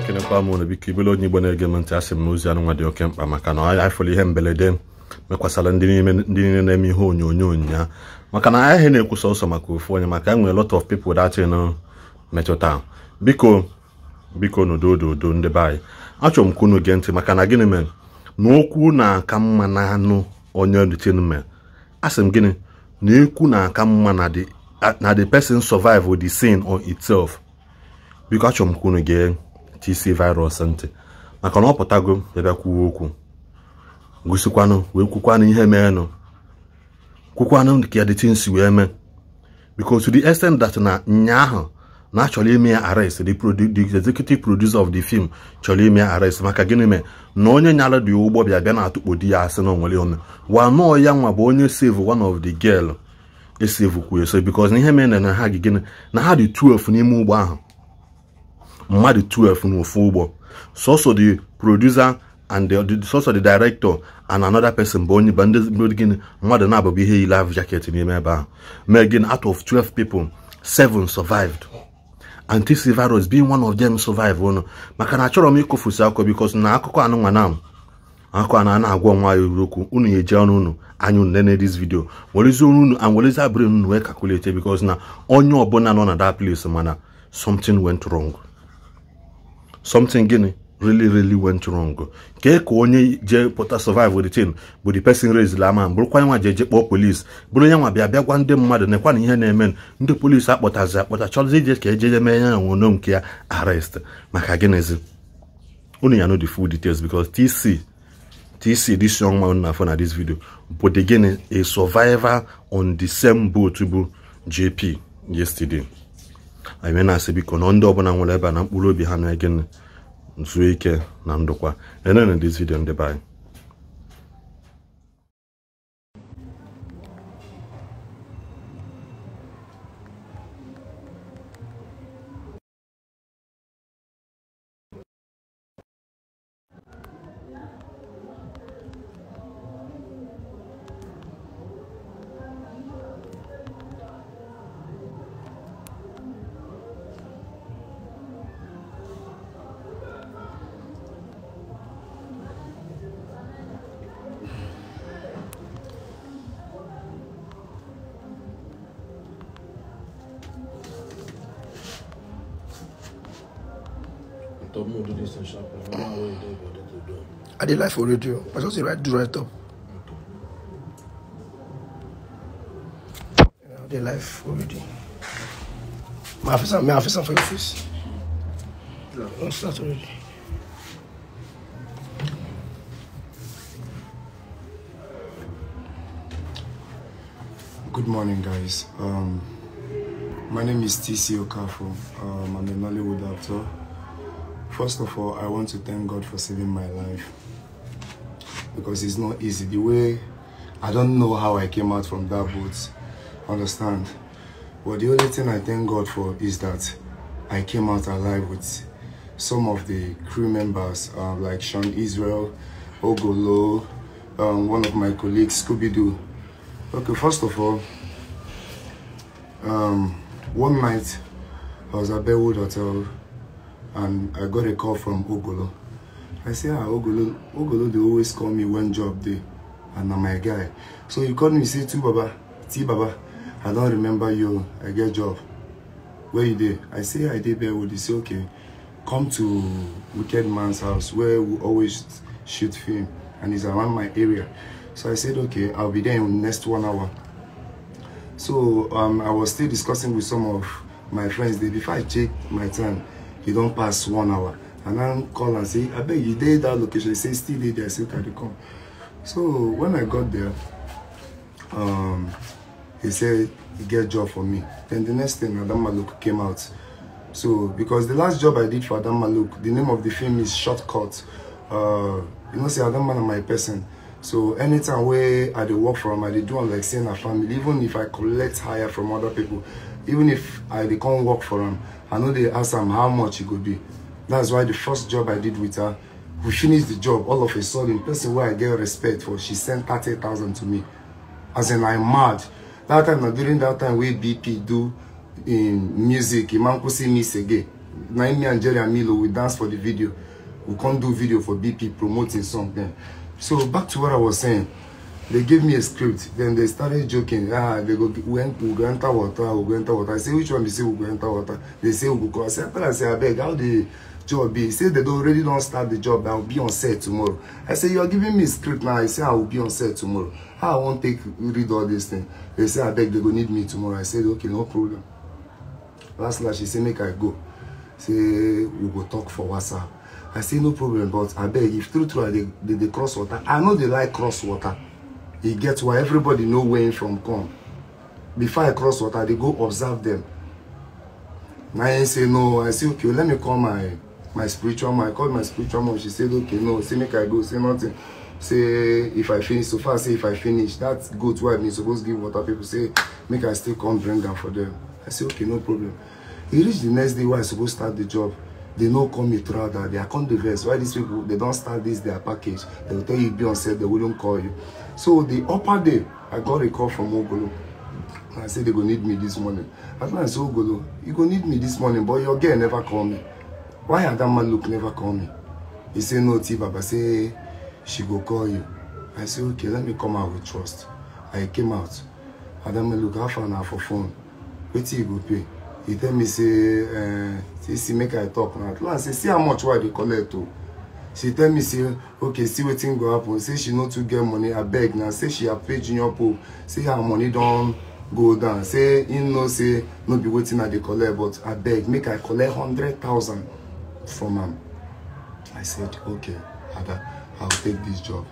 na-ekenekwa m unu biko ibele onye igbo na-ege m ntị asị m n'ozi anụ anụnwa dị oke mkpa maka na anyị fụrụ ihe mberede mekwasara ndị niile na-eme ihe onyonyo nya maka na anyị na-ekwu ọsọ maka ofu onye maka enwere lot of people that metụta biko biko n'udo udo ndị be anyị achọrọ m ka unu gee ntị maka na gịnị mere na okwu na-aka mma na anụ onye dịtinme asị m gịnị na ekwu na-aka mma na the person survive the sin on itself biko achọrọ m ka unu gee TC virus ntị maka na ọ pụtago bịabịa kwuo okwu gosikwanụ wee kwukwanụ ihe meenụ kwukwanụ ka the wee mee because to the extent that na ahụ na achọrọ ime ya arrest the executive producer of the film chọrọ ime ya arrest maka gịnị mee na onye nyara dị ụgbọ bịa bịa na-atụkpo di ya asị na onwere ọnụ wa nọọ ya nwa bụ onye save one of the girl esave kwuo eso because na ihe mere na ha gị gịnị na ha dị 12 n'ime ụgbọ ahụ mmadụ 12 n'ofu ụgbọ sọsọ the producer and sọsọ the director and another person bụ onye gịnị mmadụ na-abụbụ ihe yi ahụ jaket n'ime ebe ahụ mee gịnị out of 12 people seven survived antivirus being one of them survive ụnụ maka na achọrọ m ịkụfusi akụkọ because na akụkọ anụnwa na akụkọ a na-agwa nwa ya okwu unu ya eji ọnụ unu anya unu nene this video werezi ọnụ unu and werezi abụrụ unu wee calculate because na onye ọbụla nọ na that place mana something went wrong something gịnị really really went wrong kee ka onye je pụta survive the thing bụ the person raised ama bụrụkwa nwa jeje kpọọ polis bụrụ onye nwa bịa bịa gwa ndị mmadụ nekwa na ihe na-eme ndị polis akpọtazi akpọta chọrọzi ije ka ejeje mee ya nwono nke ya arrest maka gịnịzi unu ya know the full details because tc tc this young man na afọ na this video bụ the gịnị a survivor on the same boat bụ jp yesterday anyị na-asị biko na ndị ọbụla nwere ebe a na mkpụrụ obi ha na-ege nzuo ike na ndụkwa enene this video ndị be anyị up, no, do this I don't know what you did, but I did live for radio. I just right, do right up. Okay. You know, for radio. My officer, my officer for your face. Let's start already. Good morning, guys. Um, my name is TC Okafo. Um, I'm a Nollywood actor. First of all, I want to thank God for saving my life because it's not easy. The way I don't know how I came out from that boat, understand? But the only thing I thank God for is that I came out alive with some of the crew members uh, like Sean Israel, Ogolo, um, one of my colleagues, Scooby-Doo. Okay, first of all, um, one night I was at Bellwood Hotel and I got a call from Ogolo. I say, ah, Ogolo, Ogolo, they always call me one job day, and I'm my guy. So he called me, say, too, Baba, T, Baba, I don't remember you, I get job. Where you there? I say, I did Bearwood. He say, okay, come to Wicked Man's house, where we always shoot film, and it's around my area. So I said, okay, I'll be there in the next one hour. So um, I was still discussing with some of my friends there before I checked my time e don't pass one hour and i call and say "I abeg you dey that location say still dey there say carry come so when i got there um he said e get job for me then the next thing adam maluk came out so because the last job i did for adam maluk the name of the film is shortcut uh you know say adam man na my person so anytime where i dey work from i dey do am like say na family even if i collect hire from other people even if i dey work for am i know they ask him how much it could be that's why the first job i did with her we finished the job all of a sudden person wey i get respect for she sent thirty thousand to me as in I'm mad that time na during that time we bp do in um, music imankwusi miss again na im me and jerry amilo we dance for the video we can't do video for bp promoting something so back to what i was saying They gave me a script. Then they started joking. Ah, they go, we, we go enter water, we go enter water. I say, which one? They say, we go enter water. They say, we go. I say, I say, I beg, how the job be? He say, they already don't start the job. I'll be on set tomorrow. I say, you are giving me a script now. I say, I will be on set tomorrow. How I won't take, read all this thing. They say, I beg, they go need me tomorrow. I said, okay, no problem. Last night, she say, make I go. Say, we go talk for WhatsApp. I say, no problem, but I beg, if through through they, they, they cross water. I know they like cross water e get why everybody know where im from come before i cross water i dey go observe dem na im say no i say okay let me call my my spiritual mom i call my spiritual mom she said okay no say make i go say nothing say if i finish so far say if i finish that goat wey i been suppose give water people say make i still come bring am for them i say okay no problem e reach the next day wey i suppose start the job they no call me throughout that day i come dey vex why these people they don start this their package they go tell you be on set they wouldn't call you So the upper day, I got a call from Ogolo. And I said, they go need me this morning. I said, Ogolo, you go need me this morning, but your girl never call me. Why had that man look never call me? He said, no, Tiba, baba say, she go call you. I said, okay, let me come out with trust. I came out. Adam look half an hour for phone. Wait till you go pay. He tell me, say, uh, see, see, make I talk now. I last, say, see how much why they collect, too. Oh she tell me say okay see wetin go happen say she no too get money abeg na say she pay junior pope say her money don go down say him know say no be wetin i dey collect but abeg make i collect hundred thousand from am i said okay ada i go take dis job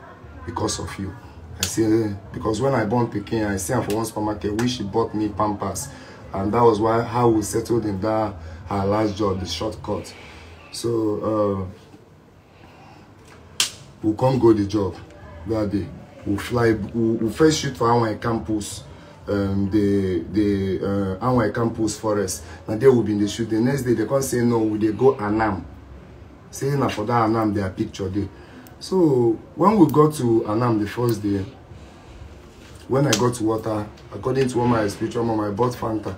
because of you i say eh, because when i born pikin i see am for one supermarket wey she bought me pampers and that was why how we settled in that her last job the shortcut so uh, we come go the job that day we fly we, we first shoot for our campus um, the the uh, our campus forest And there we been the shoot the next day they come say no we they go anam say na for that anam their picture day. so when we got to anam the first day when i got to water according to one my spiritual mom i bought fanta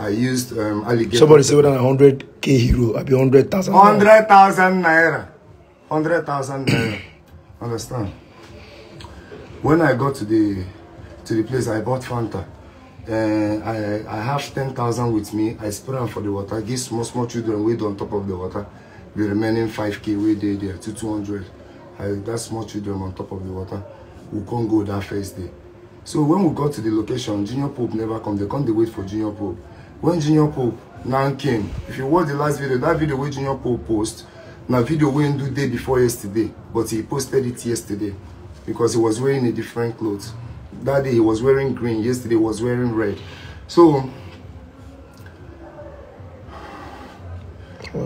I used um, alligator. Somebody said than 100k hero, I be thousand. 100,000. thousand naira. thousand naira. Understand? When I got to the to the place, I bought Fanta. Uh, I, I have ten thousand with me. I spray them for the water. Give small, small children wait on top of the water. The remaining five k we did there to two hundred. I, that small children on top of the water. We can't go that first day. So when we got to the location, Junior Pope never come. They come, they wait for Junior Pope. When Junior Pope now came, if you watch the last video, that video where Junior Pope post, na video wey do day before yesterday but he posted it yesterday because he was wearing a different clothes. that day he was wearing green yesterday he was wearing red so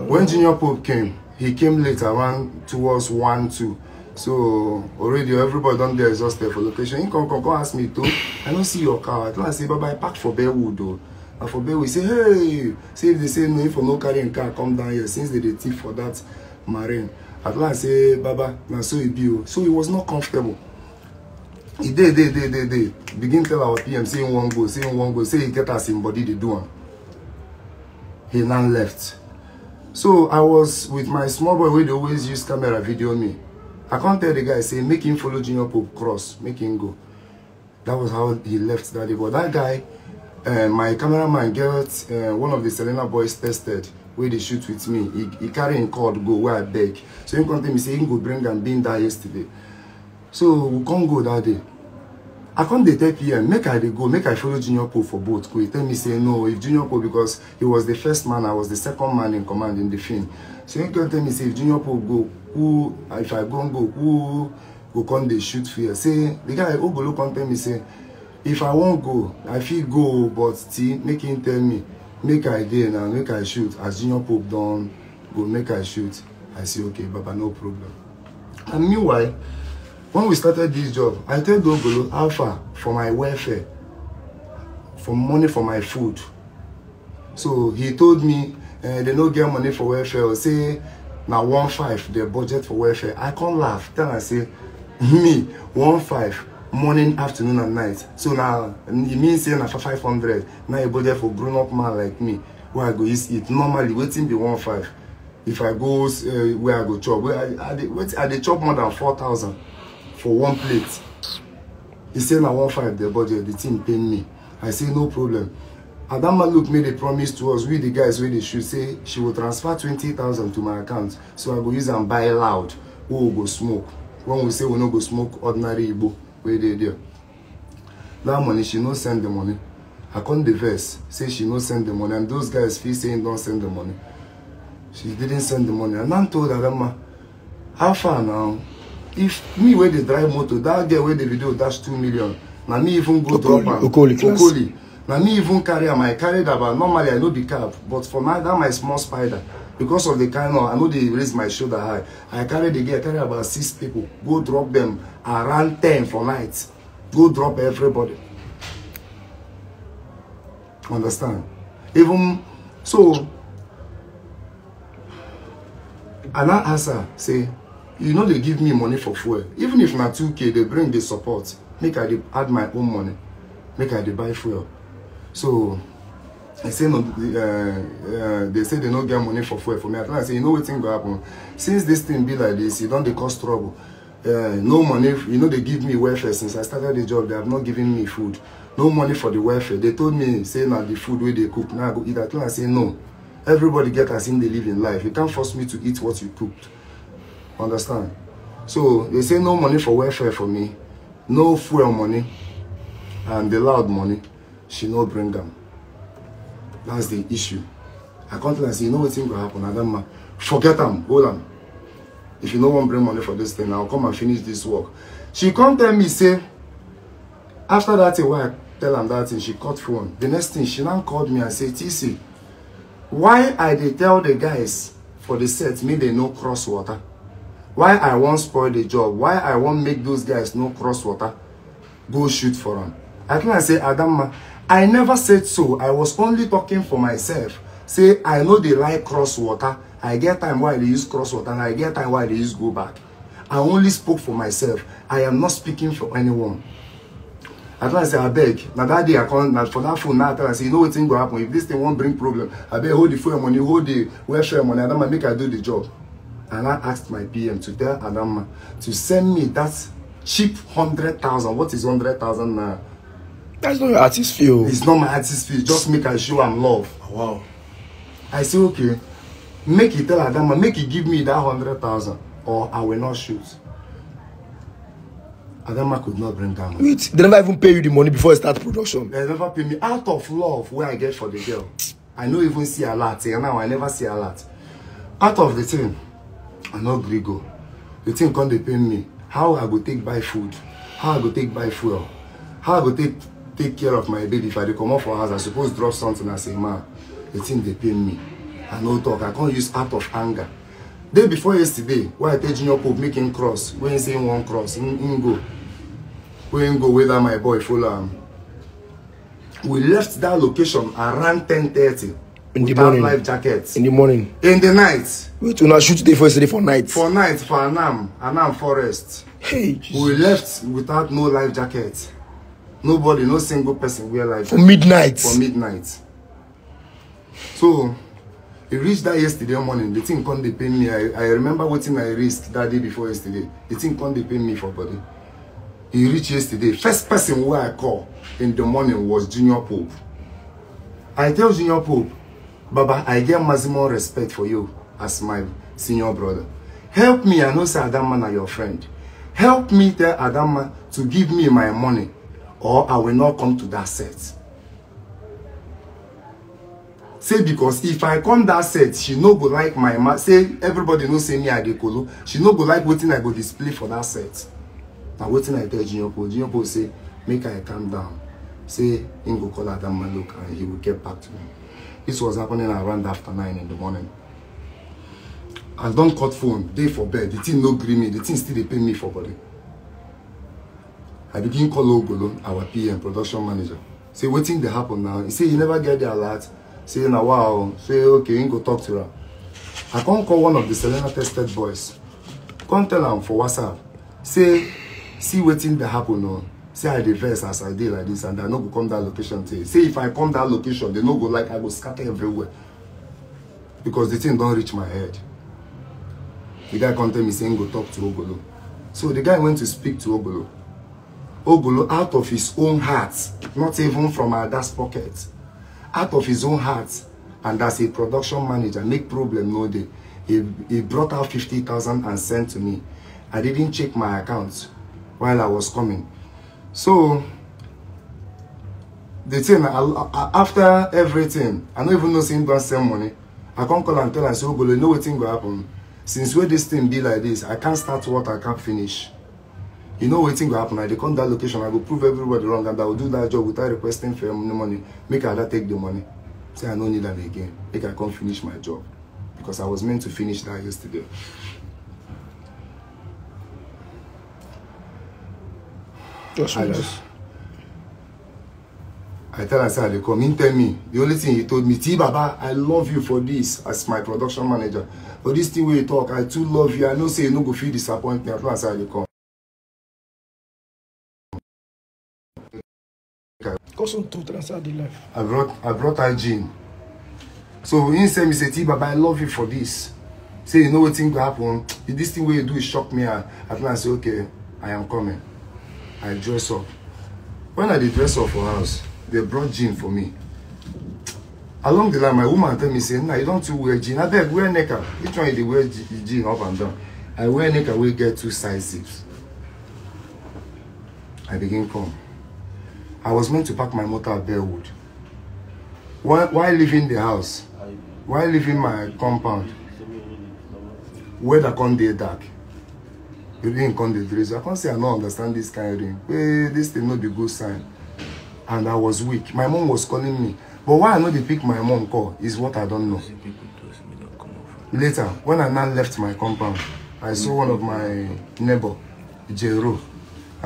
when junior pope came he came late around towards one two so already everybody done there exhausted for location him come come come ask me to i don't see your car i tell am say baba i park for bearwood o and for bearwood say hey See if they say no if i no carrying car come down here since they dey thief for that marine at last say baba na so e be o so he was not comfortable e dey dey dey dey dey begin tell our pm say him wan go say him wan go say he get as him body dey do am he now left so i was with my small boy wey dey always use camera video me i come tell the guy say make him follow junior pope cross make him go that was how he left that day but that guy uh, my cameraman get uh, one of the selena boys tested Where they shoot with me he carry him cord go where i beg so he come tell me say he go bring am been there yesterday so we can't go that day i come dey tell pm make i dey go make i follow junior pope for boat go he tell me say no if junior pope because he was the first man i was the second man in command in the film so he come tell me say if junior pope go who if i go go who go come they shoot fear say the guy ogolo come tell me say if i won't go i feel go but still make him tell me make i dey now make i shoot as junior pope done, go make i shoot i say okay baba no problem and meanwhile when we started this job i tell dogolo how for my welfare for money for my food so he told me uh, they no get money for welfare or say now one five the budget for welfare i can't laugh Then I say me one five morning afternoon and night so now e mean saying after for five hundred na e budget for grown up man like me Where i go use eat normally waiting be one five if i go uh, where i go chop where i, I dey wait i dey chop more than four thousand for one plate he say na one five the budget the team pain me i say no problem adama look made a promise to us we the guys wey dey shoot say she will transfer twenty thousand to my account so i go use and buy loud wey we go smoke when we say we no go smoke ordinary igbo wey dey there that money she no send the money i come dey vex say she no send the money and those guys feel say him don send the money she didn't send the money and i told adamma how far now if me wey dey drive motor that girl wey the video dash two million na me even go drop am okoli okoli na me even carry am i carry dabba normally i no be cab but for my that my small spider because of the kind of i know they raise my shoulder high i carry the girl carry about six people go drop them around ten for night go drop everybody understand even so i now ask her say you know they give me money for fuel even if not 2k they bring the support make i dey add my own money make i dey buy fuel so They say no, uh, uh, they say they don't get money for food for me. I tell say you know what thing go happen. Since this thing be like this, you e don't they cause trouble. Uh, no money, you know they give me welfare since I started the job. They have not given me food. No money for the welfare. They told me say now the food where they cook now I go eat. I tell I say no. Everybody get as in they live in life. You can't force me to eat what you cooked. Understand? So they say no money for welfare for me, no fuel money, and the loud money. She no bring them. That's the issue. I come to them and say, you know what thing will happen? I don't mind. Forget them. Hold them. If you no wan bring money for this thing, I'll come and finish this work. She come tell me, say, after that thing, why I tell am that thing, she cut phone. The next thing, she now called me and say, TC, why I dey tell the guys for the set, Me they no cross water? Why I won't spoil the job? Why I won't make those guys no cross water? Go shoot for am. I think I say Adamma, I never said so. I was only talking for myself. Say I know they like cross water. I get time why they use cross water and I get time why they use go back. I only spoke for myself. I am not speaking for anyone. I tell I say, I beg. Now that day I come, now for that phone, now I tell I say, you know what thing will happen? If this thing won't bring problem, I beg hold the phone money, hold the welfare money, Adama, make I do the job. And I asked my PM to tell Adama to send me that cheap hundred thousand. What is 100,000 now? That's not your artist feel. Oh. It's not my artist feel. Just make her show am love. Oh, wow. I say, okay, make it tell her that man, make it give me that hundred thousand, or I will not shoot. Adama could not bring down. Wait, they never even pay you the money before I start production. They never pay me out of love where I get for the girl. I no even see a lot. And eh, now I never see a lot. Out of the thing, I know Grigo. The thing can't depend me. How I go take buy food? How I go take buy fuel? How I go take take care of my baby if i dey comot for house i suppose drop something as a man the thing they pay me i no talk i can't use out of anger day before yesterday why i tell junior pope make him cross wey him saying one cross him him go wey him go wey my boy follow am we left that location around ten thirty in the morning life jackets. in the morning in the night We wait una shoot today for yesterday for night for night for anam anam forest hey Jesus. we left without no life jackets nobody no single person wear like for midnight for midnight so e reached that yesterday morning the thing can't dey me i i remember wetin i risk that day before yesterday the thing can't dey me for body He reached yesterday first person wey i call in the morning was junior pope i tell junior pope baba i get maximum respect for you as my senior brother help me i know say adama na your friend help me tell adama to give me my money or I will not come to that set. say because if i come that set she no go like my ma say everybody know say me i dey kolo she no go like wetin i go display for that set Now wetin i tell junior pope junior pope say make i calm down say him go call adam look and he will get back to me this was happening around after nine in the morning i don't cut phone day for bed the thing no gree me the thing still they pay me for body i begin call ogolo our pm production manager say what thing dey happen now He say you never get the alert say na wow say okay him go talk to her i can't call one of the selena tested boys Can't tell him for whatsapp say see what thing dey happen now? say i dey vex as i did like this and i no go come that location today say if i come that location they no go like i go scatter everywhere because the thing don't reach my head the guy can't tell me say him go talk to ogolo so the guy went to speak to ogolo Ogolo out of his own heart, not even from Ada's pocket, out of his own heart, and as a production manager, make problem no day. He, he brought out 50,000 and sent to me. I didn't check my account while I was coming. So, the thing, I, I, after everything, I don't even know him going to send money. I can't call and tell and say, Ogolo, you know what thing will happen. Since where this thing be like this, I can't start what I can't finish you know wetin go happen i dey come that location i go prove everybody wrong and i go do that job without requesting for any money make ada take the money say i no need am again make i come finish my job because i was meant to finish that yesterday That's I, I tell her, say, they come in, tell me. The only thing he told me, Ti Baba, I love you for this as my production manager. For this thing where you talk, I too love you. I know say you no go feel disappointment. I tell her, say, they come. cousin to transfer the life. I brought I brought her gin. So he send me T Baba, I love you for this. Say you know what thing will happen. this thing what you do is shock me at last I say, Okay, I am coming. I dress up. When I did dress up for house, they brought jean for me. Along the line, my woman tell me, say, nah, you don't wear jean. I beg, wear necker. Which one you wear jean up and down? I wear necker, we get two size zips. I begin come. I was meant to park my motor at Bearwood. While, while leaving the house, while leaving my compound, weather come dey dark. Rain come dey drizzle. I can't say I don't understand this kind of rain. Hey, this thing not be good sign. And I was weak. My mom was calling me. But why I no dey pick my mom call is what I don't know. Later, when I now left my compound, I saw one of my neighbor, Jero.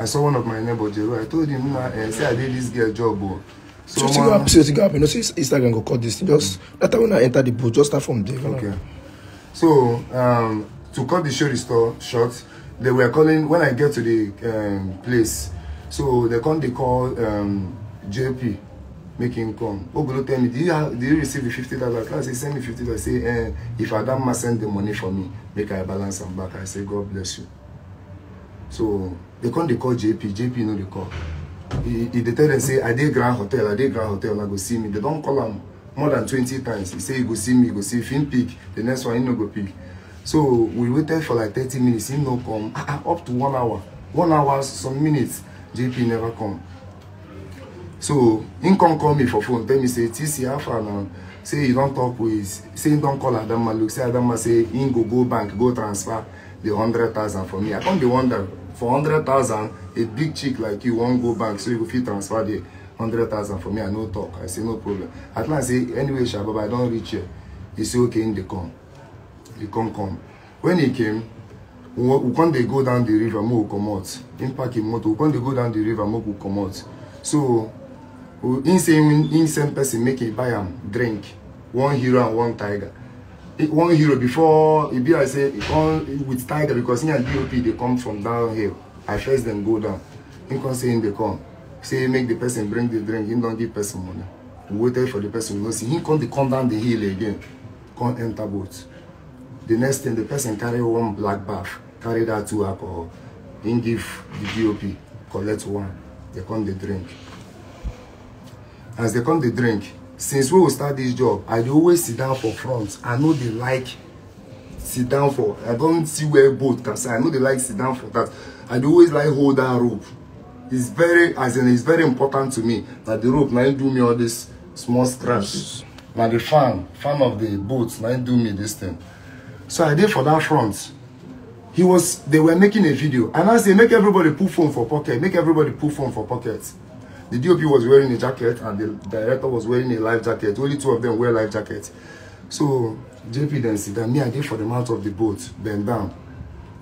I saw one of my neighbor Jero. I told him, nah, eh, say I did this girl job. Oh. So, so man, see what happen. You know, see Instagram go cut this. Just mm. that time when I enter the booth, just start from there. Okay. Like. So um, to cut the show store short, they were calling when I get to the um, place. So they come, they call um, JP, make him come. Ogolo tell me, do you have, do you receive the fifty dollars? I say send me fifty dollars. Say eh, if must send the money for me, make I balance am back. I say God bless you so they come they call jp jp no dey call he, dey tell dem say i dey grand hotel i dey grand hotel i go see me They don't call him more than 20 times He say e go see me e go see Fin him pick the next one he no go pick so we waited for like 30 minutes He no come ah, ah, up to one hour one hour some minutes jp never come so he come call me for phone tell me say tc how far now. say you don't talk with say him don't call adamma look say adamma say he go go bank go transfer the hundred thousand for me i come be wonder for hundred thousand, a big chick like you wan go bank so you go fit transfer Hundred thousand for me i no talk i say no problem at last say anyway sha baba i don reach here he say okay he dey come he come come when he came we come dey go down the river make we comot him pack him motor we come dey go down the river make we comot so him say him send person make he buy am drink one hero and one tiger one euro before e be like say e with tiger because him and dop dey come from downhill i first dem go down him come say him dey come say make the person bring the drink He don't give person money we waited for the person we go see him come dey come down the hill again come enter boat the next thing the person carry one black bath carry that two alcohol him give the dop collect one they come the drink as they come the drink since we start this job i dey always sit down for front i no dey like sit down for i don see where boat can say i no dey like sit down for that i dey always like hold that rope it's very as in it's very important to me na the rope na do me all this small scratches na the fan fan of the boat na do me this thing so i dey for that front he was they were making a video and i say make everybody put phone for pocket make everybody put phone for pocket The DOP was wearing a jacket and the director was wearing a life jacket. Only two of them wear life jackets. So JP then said, down. Me, I did for them out of the boat, bend down.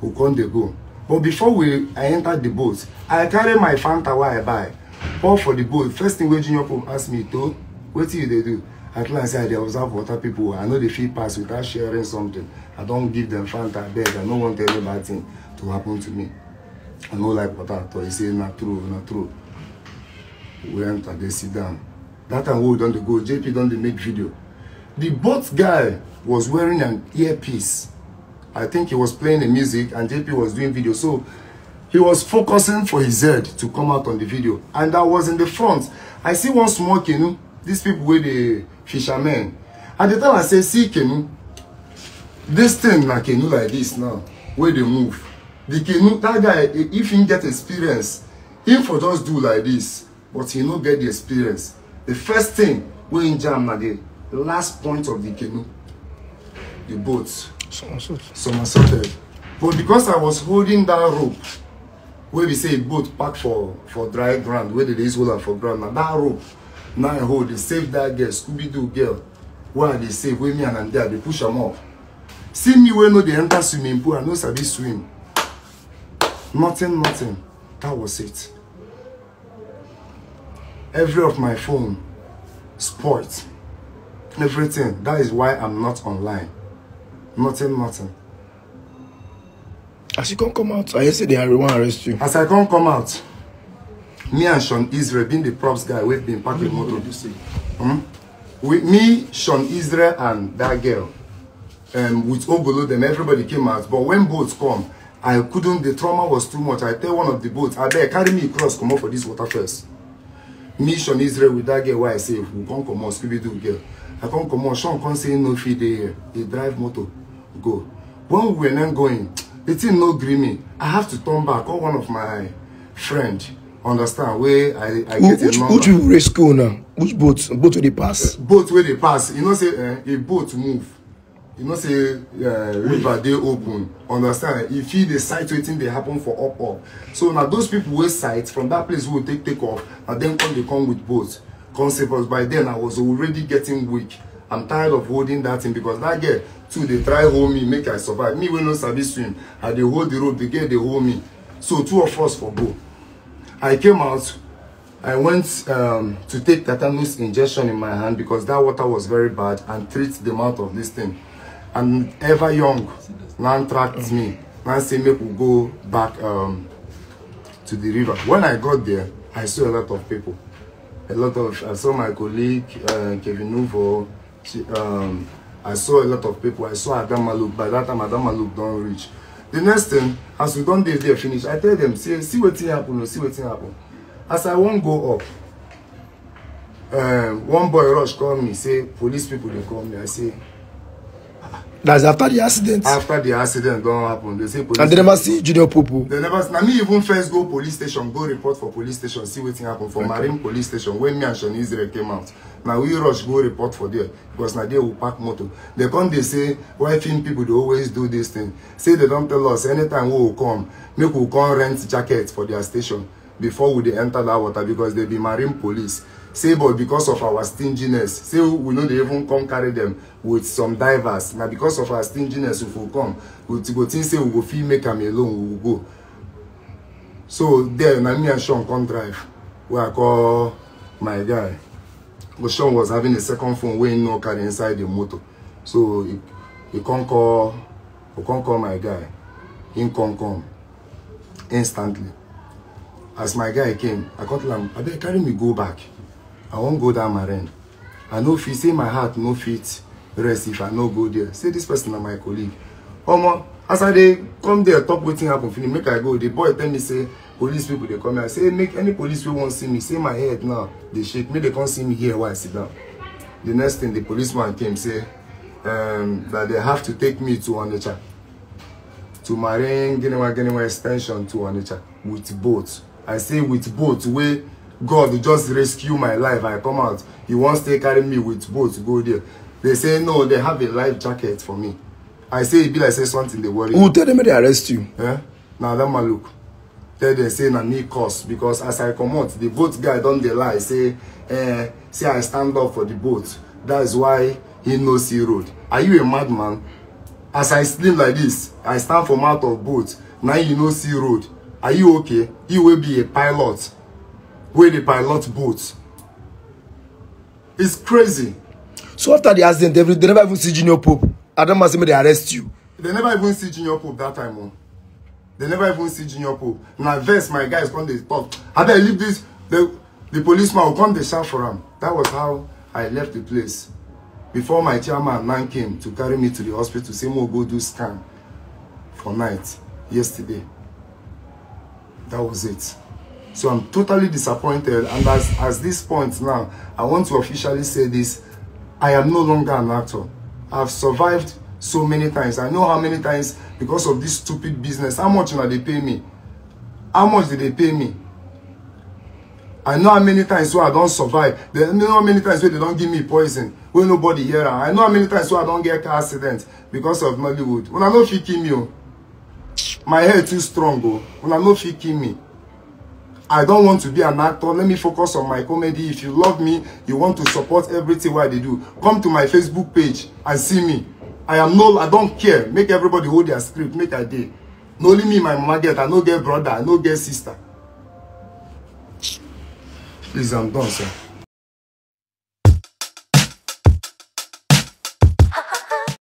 Who can they go? But before we, I entered the boat, I carry my Fanta where I buy. all for the boat. First thing when Junior Pope asked me, to, what do they do? At last, I they observe water people. I know they feel pass without sharing something. I don't give them Fanta bed. I don't want any bad thing to happen to me. I know like water So He said, not true, not true. We enter, they sit down. That time we don't go, JP don't make video. The bot guy was wearing an earpiece. I think he was playing the music and JP was doing video. So he was focusing for his head to come out on the video. And I was in the front. I see one small canoe. These people were the fishermen. At the time I say, see canoe. This thing like canoe like this now, where they move. The canoe, that guy, if he get experience, him for just do like this but he no get the experience the first thing wey e jam na the last point of the canoe the boat somersaulted but because i was holding that rope wey be say boat park for for dry ground wey dey dey use hold am for ground na that rope na i hold dey save that girl scooby-doo girl wey i dey save wey me and am dey i dey push am up see me wey no dey enter swimming pool i no sabi swim nothing nothing that was it every of my phone, sports, everything. That is why I'm not online. Nothing, nothing. As you can't come out, I said they want to arrest you. As I can't come out, me and Sean Israel, being the props guy, we've been packing. packed with motor. Hmm? With me, Sean Israel, and that girl, um, with Obolo, them, everybody came out. But when boats come, I couldn't, the trauma was too much. I tell one of the boats, I beg, carry me across, come up for this water first mission israel with dat girl wey i save we come comot scooby-doo girl i come comot sean come say no fit dey here drive motor go when we were going the thing no gree me i have to turn back call one of my friend understand where i i get a number which you race school now which boat boat wey dey pass boat where they pass you know say eh, a boat move you know say uh, river dey open understand you fit dey sight wetin dey happen for up up so na those people wey sight from that place wey we take take off na dem come dey come with boat come save us by then i was already getting weak i'm tired of holding that thing because that girl too dey try hold me make i survive me wey no sabi swim i dey hold the rope the girl dey hold me so two of us for boat. i came out I went um, to take tetanus injection in my hand because that water was very bad and treat the mouth of this thing and ever young man tracked me man say make we go back um, to the river when i got there i saw a lot of people a lot of i saw my colleague uh, kevin nuvo she, um, i saw a lot of people i saw adamaluk by that time adamaluk don reach the next thing as we don dey there finish i tell them say see wetin happen o oh, see wetin happen as i wan go up um, one boy rush call me say police people dey call me i say That's after the accident. After the accident don't happen, they say police. And they never see Junior Popo. They never. Now me even first go police station, go report for police station, see wetin happen for okay. Marine police station when me and Sean Israel came out. Na we rush go report for there because now there will park motor. They come they say why film people they always do this thing. Say they don't tell us anytime we will come, make we come rent jacket for their station before we they enter that water because they be Marine police say but because of our stinginess say we no dey even come carry dem with some divers na because of our stinginess we for come we go think say we go fit make am alone we go so there na me and sean come drive wey i call my guy but sean was having a second phone wey he no carry inside the motor so he, he come call he come call my guy He come come instantly as my guy came i come tell am abeg carry me go back i won't go dat maren i no fit say my heart no fit rest if i no go there say this person na my colleague omo as i dey come there talk wetin happen finish make i go the boy tell me say police people dey come here say make any police wey wan see me say my head now dey shake make They come see me here while i sit down the next thing the policeman came say um, that they have to take me to onitsha to marine ginewa ginewa extension to onitsha with boat i say with boat where god just rescue my life i come out he wants to carry me with boat go there they say no they have a life jacket for me i say e be like say something They worry who tell them they arrest you. Eh? na that look. tell them say na me cause because as i come out, the boat guy don't dey lie say eh, say i stand up for the boat that is why he no see road are you a madman? as i slim like this i stand for mouth of boat Now you no see road are you okay you will be a pilot wey dey pilot boats. it's crazy. so after the accident they, they never even see junior pope adama say make they arrest you. they never even see junior pope that time o oh. they never even see junior pope Now, vex my guys come dey talk I leave this the the policeman will come dey shout for him. that was how i left the place before my chairman man came to carry me to the hospital say mo go do scan for night yesterday that was it. So I'm totally disappointed. And as, as this point now, I want to officially say this. I am no longer an actor. I've survived so many times. I know how many times because of this stupid business. How much did they pay me? How much did they pay me? I know how many times so I don't survive. I know how many times where they don't give me poison. Where nobody here. I know how many times so I don't get car accident because of Nollywood. When I know if you kill me, oh. my hair too strong. When oh. I know if you kill me. I don't want to be an actor. Let me focus on my comedy. If you love me, you want to support everything what they do. Come to my Facebook page and see me. I am no, I don't care. Make everybody hold their script. Make a day. No only me, my mama get. I no get brother. I no get sister. Please, I'm done, sir.